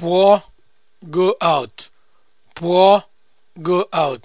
Pụọ, go out. Pụọ, go out.